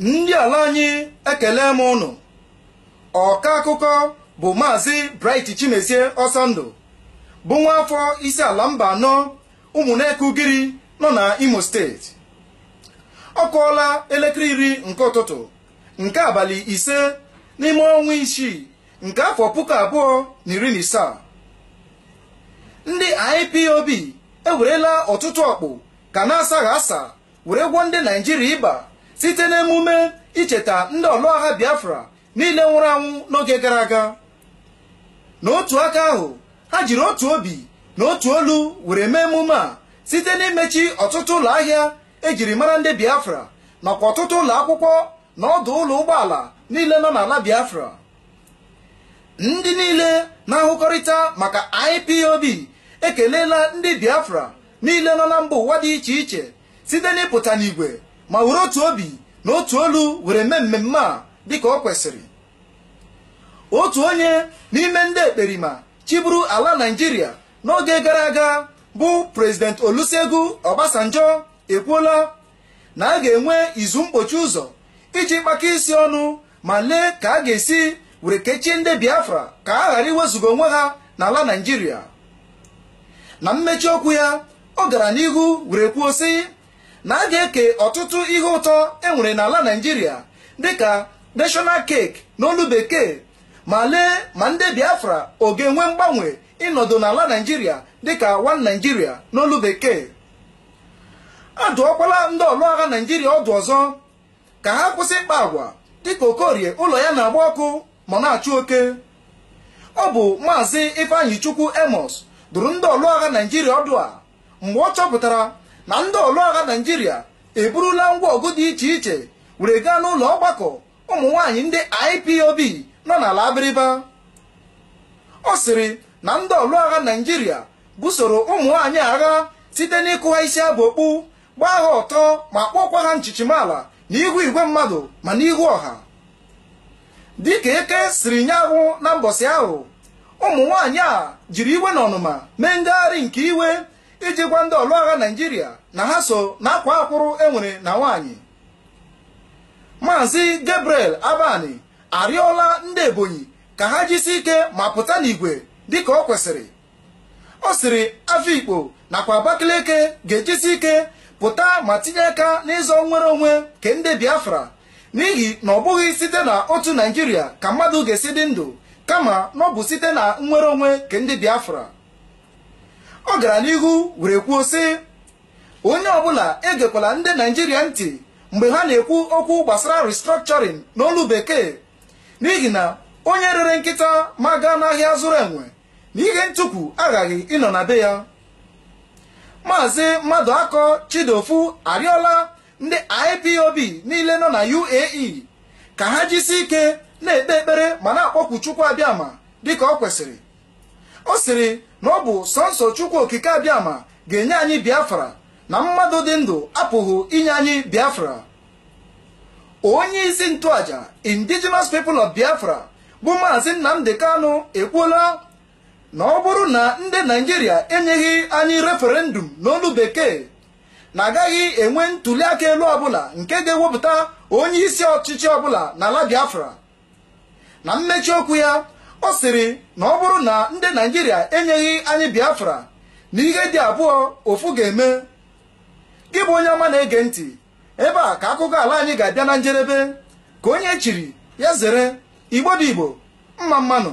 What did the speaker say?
ndị ala anyị ekele m ụnụ ọka akụkọ bụ maazị Bright Chimezie Ọsọndụ bụ nwa afọ isi ala mba anọ ụmụneke ugiri nọ na Imo steeti ọ kụọla elekere iri nke ụtụtụ nke abalị ise n'ime ọnwa isii nke afọ puku abụọ na iri na isaa ndị IPOB ewerela ọtụtụ ọkpụ ka na-asaghị asa were gwọọ ndị Naijiria ịba site na emume icheta ndị ọlụagha biafra niile nwụrụ anwụ n'oge gara aga n'otu aka ahụ ha jiri otu obi na otu olu were mee emume a site n'imechi ọtụtụ ụlọ ahịa ejiri mara ndị biafra nakwa ọtụtụ ụlọ akwụkwọ na ọdụ ụlọ ụgbọala niile nọ n'ala biafra ndị niile na-ahụkọrịta maka IPOB ekeleela ndị biafra niile nọ na mba ụwa dị iche iche site n'ịpụta n'igwe ma were otu obi na otu olu were mee mmemme a dịka ọ kwesịrị otu onye n'ime ndị ekperima chiburu ala naijiria n'oge gara aga bụ prezident olusegun obasanjo ekwuola na a ga-enwe izu mkpochi ụzọ iji kpaka isi ọnụ ma lee ka a ga-esi were kechie ndị biafra ka a ghara iwezuga onwe ha n'ala naijiria na mmechi okwu ya ọ gara n'ihu were kwuo sị na a ga-eke ọtụtụ ihe ụtọ enwere n'ala naijiria dịka national na n'olu bekee ma lee ma ndị biafra ọ ga-enwe mgbanwe ịnọdụ n'ala naijiria dịka one naijiria n'olu bekee a dụọkwala ndị ọlụagha naijiria ọdụ ọzọ ka ha kwụsị ịkpa agwa dịka okorie ụlọ ya na-agba ọkụ ma na-achụ oke ọ bụ maazị ifeanyi chukwu emos dụrụ ndị ọlụagha naijiria ọdụ a mgbe ọ chọpụtara na ndị ọlụagha naijiria eburula ngwa ọgụ dị iche iche were gaa n'ụlọ ọgbakọ ụmụ nwaanyị ndị ipob nọ n'ala abịrịba ọ sịrị na ndị ọlụagha naijiria busoro ụmụ nwaanyị agha site n'ịkụ ha isi abụ okpu gbaa ha ọtọ ma kpọọkwa ha nchichimala n'ihu igwe mmadụ ma n'ihu ọha dịka eke siri nye ahụ na mbọsị ahụ ụmụ nwaanyị a jiri iwe na ọnụma mee ngagharị nke iwe iji gwa ndị ọlụ agha naijiria na ha so na akwa akwụrụ enwere na nwaanyị maazị gabriel abani arịọla ndị ebonyi ka ha jisi ike ma pụta n'igwe dịka ọ kwesịrị ọ sịrị afikpo nakwa abakaliki ga-ejisi ike pụta ma tinye aka n'ịzọ nwere onwe ke ndị biafra n'ihi na ọ bụghị site na otu naijiria ka mmadụ ga-esi dị ndụ kama na ọ bụ site na nnwere onwe ke ndị biafra ọ gara n'ihu were kwuo sị onye ọbụla egekwala ndị naijiria ntị mgbe ha na-ekwu okwu gbasara restructuring n'olu bekee n'ihi na onye rere nkịta ma gaa n'ahịa zụrụ enwe na ihe ntụkwu aghaghị ịnọ na be ya maazị mmadụ akọ chidofu arịọla ndị ipob niile nọ na uae ka ha jisie ike na-ekpe ekpere ma na-akpọkwu chukwu dịka ọ kwesịrị ọ sịrị na ọ bụ sọnsọ chukwu okike abịama ga-enye anyị biafra na mmadụ dị ndụ apụghị inye anyị biafra onye isi ntụaja indigenous people of biafra bụ maazị nnamdi kanu ekwuola na ọ bụrụ na ndị naijiria enyeghị anyị referendum n'olu bekee na agaghị enwe ntuli aka elu ọbụla nke ga-ewepụta onye isi ọchịchị ọbụla n'ala biafra na mmechi okwu ya ọ sịrị na ọ bụrụ na ndị naijiria enyeghị anyị biafra na ihe dị abụọ ofu ga-eme gị bụ onye ọma na-ege ntị ebe a ka akụkọ ala anyị ga-abịa na njedebe ka onye e chiri ya zere igbo igbo mma mmanụ